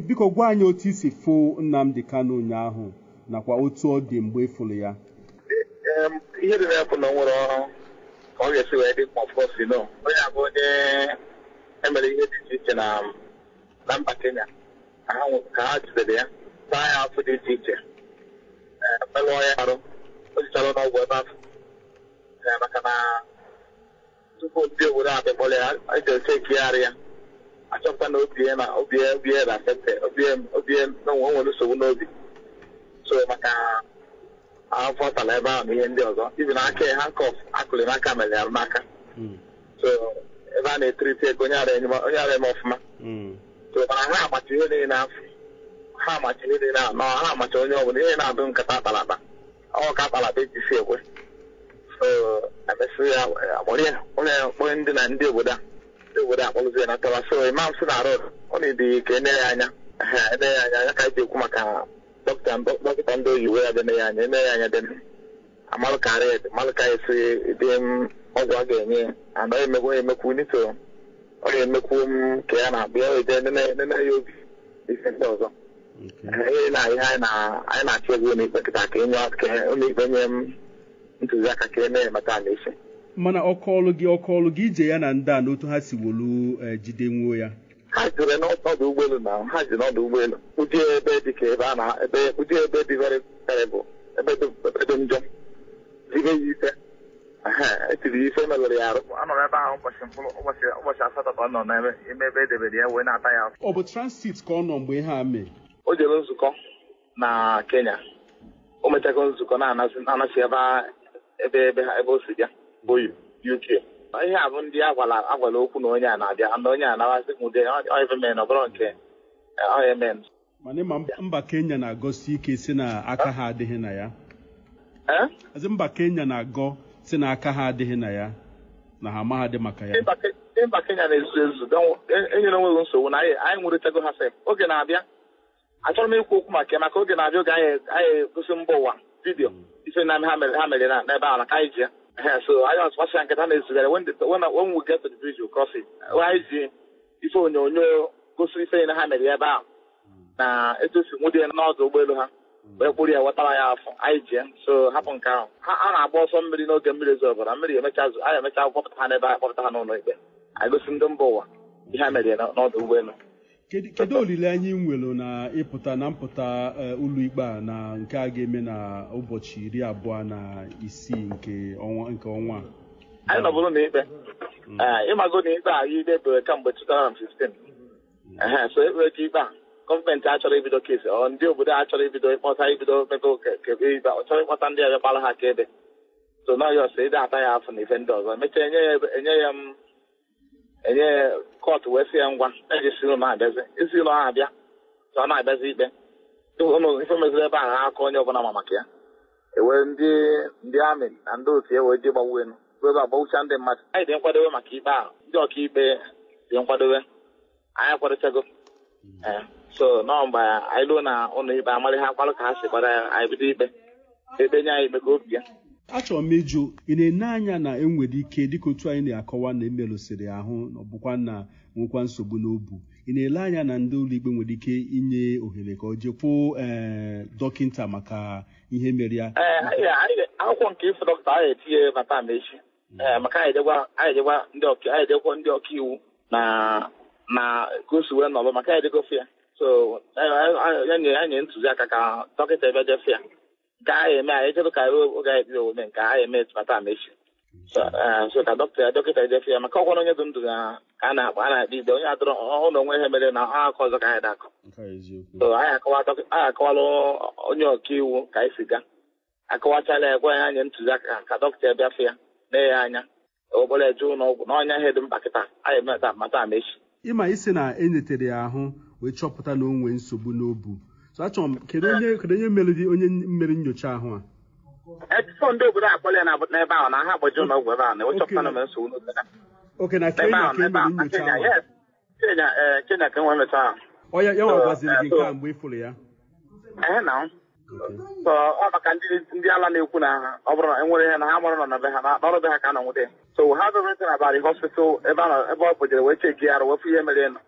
biko gwa anyị otu isi fụ Nnamdi Kanu ụnyaahụ nakwa otu ọ dị mgbe ịfụrụ ya ihe dị na bụ na nwere ọrụ ka ọ ga-esi wee dị mkpa ọfọsi no onye abụ onye emere ihe dị iche iche na mba Kenya ka ha jidere ya taa ya afọ dị iche iche melụọ ya arụ o jichara n'ọgwụ ebe afọ maka na tupu ndị obodo abịa kpọrọ ya eji oche ekigharị ya achọpụta na obi na obie obie na obi obie na nwere nsogbu n'obi so maka afọ tala ebe ahụ na ihe ndị ọzọ ibi na aka ha kọf akụlị n'aka mere arụ n'aka hmm. so ebe a na-etiriti ego onye ara eme ọfụma hmm. so mana ha amacha ihe niile afọ ha amacha ihe niile anọ ha amacha onye ọbụla ihe na-adụ nkata akpalakpa ọ ka akpalakpa e si ekwe so emesịrị kpọrọ onye ndị na ndị obodo a obodo akpọ ụzọ ya na uh-huh. uh, uh, tawa so imam sị na rod ọ na-edeghị ka enere ya anya enere ya anya anya ka anyị ji ekwu maka dọkịta dọkịta ndị oyibo ya dene ya anya enere ya anya dene amalụkarị amalụka esi dị ọgwụ a ga-enye anaghị emekwu emekwu nito ọ ga-emekwu m ka ya na-abụ ya wete nene ya obi ife ndị ọzọ ihe na ihe anyị na-achọ egwu n'ikpe kịta ka onye ikpe nye m ntụziaka ka e na-emeta ala isi mana ọkụ ọlụ gị ọkụ ọlụ gị ije ya na nda a n'otu ha si wolu e, jidenwuo ya ha jere n'ọdụ ụgbọelu na ha ji n'ọdụ ụgbọelu ụdị ebe dị ka ebe a na ebe ụdị ebe dị bụ ebe dị njọ zibe ya ise etiri ife meghere ya arụ anọrọ ebe ahụ ụbọchị ụbọchị ụbọchị asatọ ka ọ nọ n'ime ebe edebere ya wee na-ata ya afọ ọ bụ transit ka ọ nọ mgbe ihe a mee o jere nzukọ na Kenya o mechago nzukọ na-anasị ebe ebe ebe o si bịa oyibo UK ihe a bụ ndị agwala agwala okwu na onye a na-abịa na onye a nawazi m ụdị men ọ bụrụ nke eh, men mana ịma mba Kenya na-agọsi ike si na aka ha adịghị na ya azi mba Kenya na-agọ si na aka ha adịghị na ya na ha amaghadị maka ya mba Kenya na-ezu ezu enyere e onweghị nsogbu na anyị nwụrịtago ha fe oge na-abịa achọrọ m ikwu okwu maka maka oge na-abịa oge anyị egosi mba ụwa vidiyo mm. ife na ha mere ha mere n'ebe ala ka anyị ji ya Yeah, so I don't what's I can is that when the, when when we get to the bridge we cross it. ife onyonyo gosi ife na ha mere ebe a. na etosi nwụdị n'ọdụ ụgbọelu ha wee kpụrụ ya wetara ya afọ anyị jie so hapụ nke ahụ a na-agba ọsọ mmiri n'oge mmiri zo ọbara mmiri emecha anyị emecha kpọpụta ha n'ebe anyị kpọpụta ha n'ụlọ ikpe anyị gosi ndị mba ụwa ihe ha mere n'ọdụ ụgbọelu kedu olileanya ị nwere na ịpụta na mpụta eh, ụlọikpe a na nke a ga-eme na ụbọchị iri abụọ na isii nke ọnwa anyị nọbụrụ n'ikpe ikpe hmm. eh, ịmago na ikpe a idebere kemgbe 2015 so ekpere ka ikpe a gọọmenti achọrọ ibido kesi ọ ndị obodo a chọrọ ibido ịkpọta ibido mebe ikpe ọ chọrọ ịkpọta ndị ọbịa gbara ha ka ebe so nọghị ọsọ ata ya afọ na ife ndị ọzọ emechaa enye ya m mm, enye kọtụ wee si ya ngwa ejisiri m abịazi esi ụlọ ha abịa ka ọ na-abịazi ikpe ụlọ ife meziri ebe ahụ aka onye ọbụla ma maka ya ewe ndị ndị amị na ndị otu ya wee je gbawa elu bụ ndị mmadụ anyị dị nkwadobe maka ikpe ahụ ndị ọkaikpe dị nkwadowe anyị akwadochago hmm. eh, so nọ mgbe anyị ruo na ụlọ ikpe amarị ha ka ha si gbara anyị bido ikpe ebe nye anyị ikpe ka obi ya achọrọ m ịjụ ị na-ene anya na enwere ike dịka otu anyị na-akọwa na emerụsịrị ahụ na ọbụkwa na nwekwa nsogbu n'obu ị na-ele anya na ndị ụlọ ikpe nwere ike inye ohere ka ọ jekwu eh, dọkịta maka ihe mere ya eh, akwụkwọ nke ifo dọkịta ahụ etinye mata echi eh, maka anyị ejekwa ndị ọkaiwu na ka o si wee nọrọ maka anyị ejegofe ya so ya nye ntụziaka ka dọkịta ebe jefe ya nke a ga-eme anyị chedụkarị oge anyị kpere omume nke a ga-eme tụmata mechi so ka dọkịta dọkịta edefe ya maka ọkwara onye ndụ ndụ na ka a na-akpa a na-akpa ide onye adọrọ ọhụrụ onwe ha mere na ha akọ ọzọ ka anyị dakọ so anyị akọwala onye ọkaiwu ka anyị si ga akọwachala ya gwa ya anyị ntụziaka ka dọkịta bịafe ya na ya anya obere jee ụlọ ọgwụ na ọnya ihe dị mkpa kịta anyị mata mata mechi ịma isi na enyetere ya ahụ wee chọpụta na o nwee nsogbu n'obu so kedu onye kedu onye meriri onye mmeri nyocha ahụ a etuto ndị obodo akpọrọ ya n'ebe ahụ na ha agbaji ụlọ ọgwụ ebe ahụ na ịchọpụta e na e mere nsogbu oke na kenya ka emere nyocha ahụ kenya ka enwe mecha ahụ ọ ya ya nwagwaziri gị nke a eh, mgbe ị fụrụ ya ehe na so ọ maka ndị ala na-ekwu na ha ọ bụrụ na enwere ihe na ha mụrụ nọ na be ha n'ọrụ be ha ka a nọ nwute so ha bụ everything about the hospital ebe ọ bụjere wee cheki ya arụ wepụ ihe mere nọ